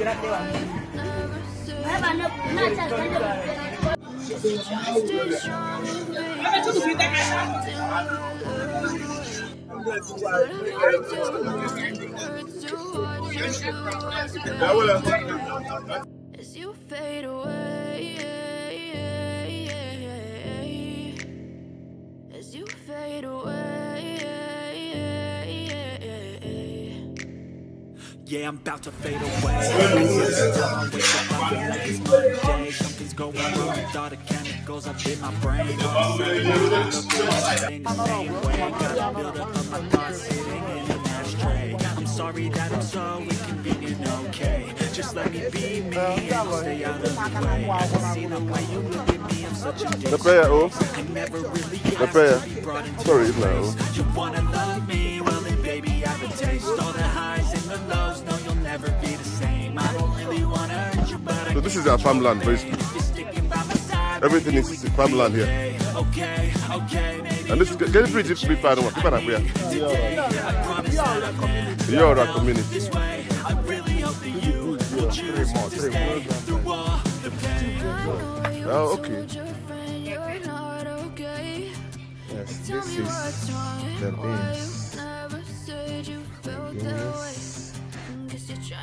As you fade away, as you fade away. Yeah, I'm about to fade away. Something's going wrong with all the chemicals up in my brain. in I'm sorry that I'm so inconvenient, okay? Just let me be me and I'll stay out of the way. I can see the way you look at me, I'm such a oh. dick. The player, oh. The player. Sorry, no. You wanna love me? Well, then baby, I have a taste. All the highs and the lows never be the same. I don't really want to hurt you, but So this is our farmland, basically. Everything is farmland here. Okay, okay. And this get it pretty free fire one. Keep it up here. You're our community. Three more, three more. Oh, okay. Yes, this is the beans.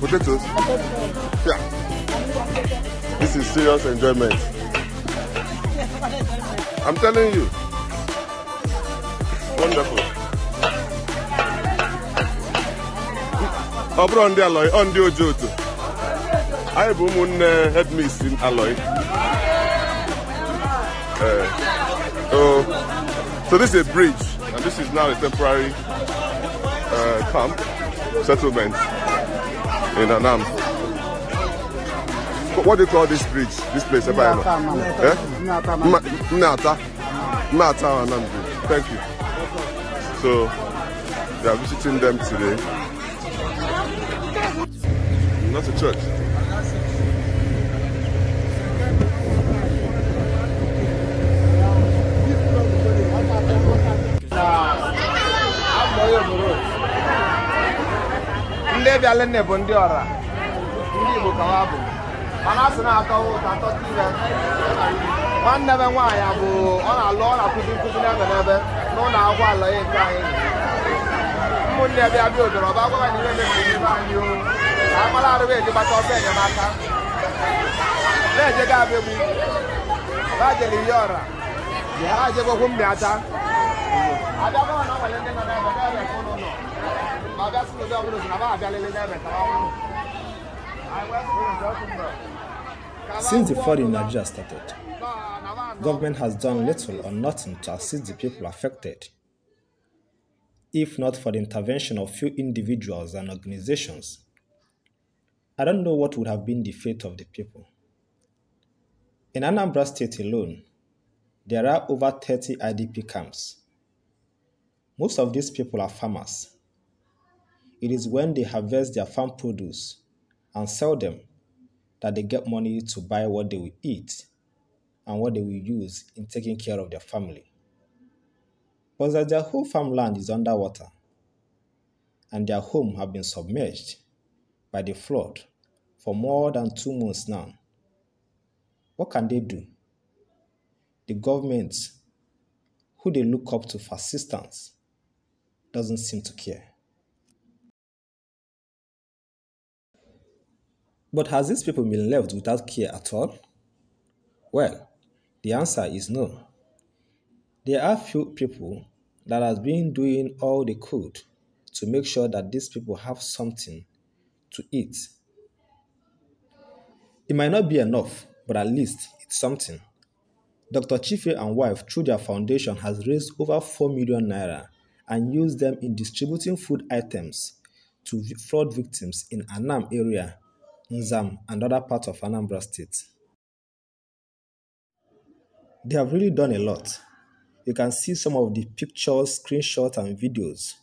Potatoes? Yeah. This is serious enjoyment. I'm telling you. Wonderful. on the ọ bụrụ ndị alọị ọ ndị oji otu anyị bụ ụmụnne hedmis alọị eh, so this is a bridge and this is now a temporary uh, camp settlement in Anam. What do you call this bridge? This place? Mnata. Eh? Mnata. Mnata Anam Bridge. Thank you. So, they are visiting them today. Not a church. Alinne bụ ndị ọra ndị Igbo ka ha bụ mana a sị na-atọ ụtọ atọ ire nwanne m nwaanyị abụ ọ na-alụ ọ na-akụzi nkụzi n'ebe n'ebe n'ụlọ akwụkwọ ala ya nke anyị ụmụnne bịa bịa odoro ọba agwa anyị niile na-ekpe anyị o ka agbara arụba eji gbata ọsọ enyemaka na-ejega abịagbu ha jere ihe ọra ha jegokwu mmịata abịakwa na ọ nwere ndị nọ n'ebe Since the fighting in Nigeria started, government has done little or nothing to assist the people affected. If not for the intervention of few individuals and organizations, I don't know what would have been the fate of the people. In Anambra State alone, there are over 30 IDP camps. Most of these people are farmers it is when they harvest their farm produce and sell them that they get money to buy what they will eat and what they will use in taking care of their family. But as their whole farmland is underwater and their home have been submerged by the flood for more than two months now, what can they do? The government, who they look up to for assistance, doesn't seem to care. But has these people been left without care at all? Well, the answer is no. There are few people that has been doing all they could to make sure that these people have something to eat. It might not be enough, but at least it's something. Dr. Chife and wife through their foundation has raised over 4 million naira and used them in distributing food items to flood victims in Annam area Nzam, and other parts of Anambra State. They have really done a lot. You can see some of the pictures, screenshots, and videos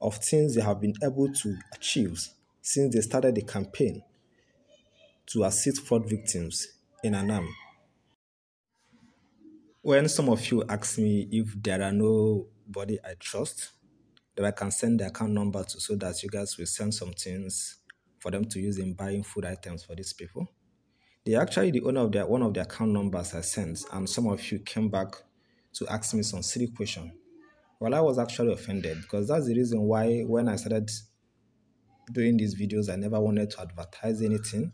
of things they have been able to achieve since they started the campaign to assist fraud victims in Anam. When some of you ask me if there are nobody I trust that I can send the account number to so that you guys will send some things for them to use in buying food items for these people. They actually the owner of their one of the account numbers I sent, and some of you came back to ask me some silly question. Well, I was actually offended because that's the reason why when I started doing these videos, I never wanted to advertise anything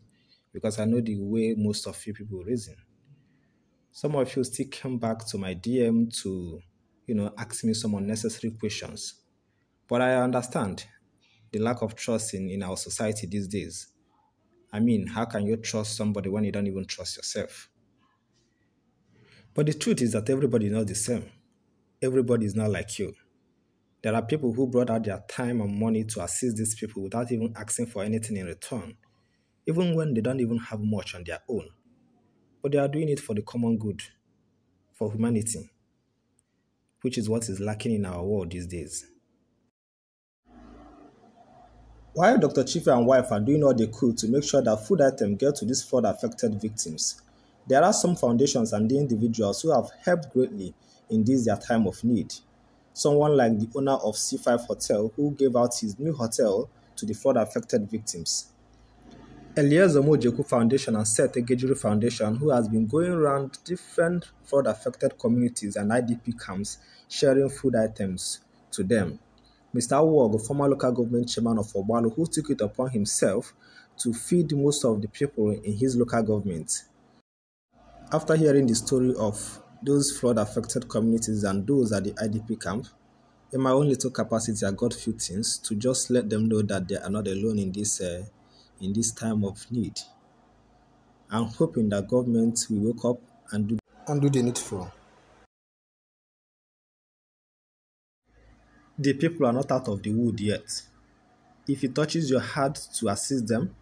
because I know the way most of you people reason. Some of you still came back to my DM to, you know, ask me some unnecessary questions. But I understand the lack of trust in, in our society these days. I mean, how can you trust somebody when you don't even trust yourself? But the truth is that everybody is not the same. Everybody is not like you. There are people who brought out their time and money to assist these people without even asking for anything in return, even when they don't even have much on their own. But they are doing it for the common good, for humanity, which is what is lacking in our world these days. While Dr. Chife and wife are doing all they could to make sure that food items get to these flood-affected victims, there are some foundations and the individuals who have helped greatly in this their time of need. Someone like the owner of C5 Hotel who gave out his new hotel to the flood-affected victims. Eliezer Mojeku Foundation and Seth Egejuru Foundation, who has been going around different flood-affected communities and IDP camps sharing food items to them. Mr. Wog, former local government chairman of Obalo, who took it upon himself to feed most of the people in his local government. After hearing the story of those flood-affected communities and those at the IDP camp, in my own little capacity, I got few things to just let them know that they are not alone in this, uh, in this time of need. I'm hoping that government will wake up and do, and do the needful. The people are not out of the wood yet. If it touches your heart to assist them,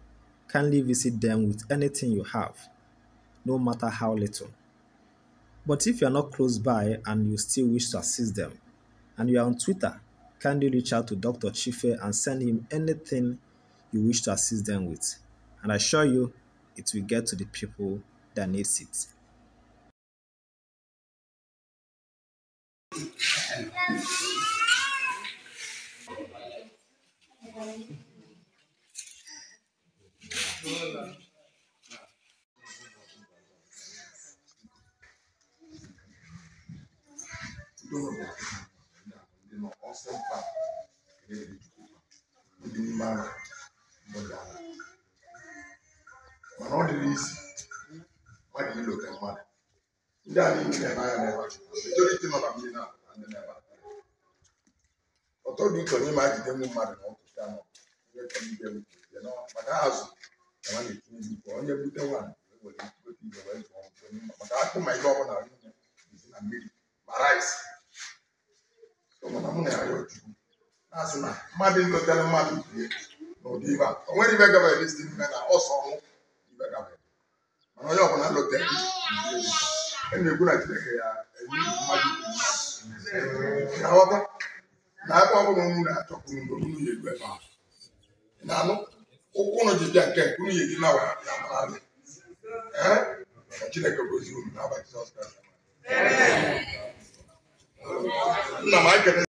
kindly visit them with anything you have, no matter how little. But if you are not close by and you still wish to assist them, and you are on Twitter, kindly reach out to Dr. Chife and send him anything you wish to assist them with. And I assure you, it will get to the people that needs it. mana ọ dịrị isi mmadụ ilo ka mmadụ ndị a niile na-eme anya n'ebe majoriti nọ na mmiri na ọtọ dị ka onye ma jide nwu mmadụ n'ọkụ na onye bute nwaanyị ewere weta ibe wee zụọ maka akpụ ma ihe na mmiri ya rịọ a o na mana onye ọbụla nlote na-ekwu ya enyi mmadụ na na-akpọ ọbụla ọnụ na-achọkwuru mgbe unu ya egbe ma na anụ ụkwụ ụnụ ji nke unu ya edina wa ya mara gị ka chineke gozi unu n'abalị jizọs kraịst nna m ekele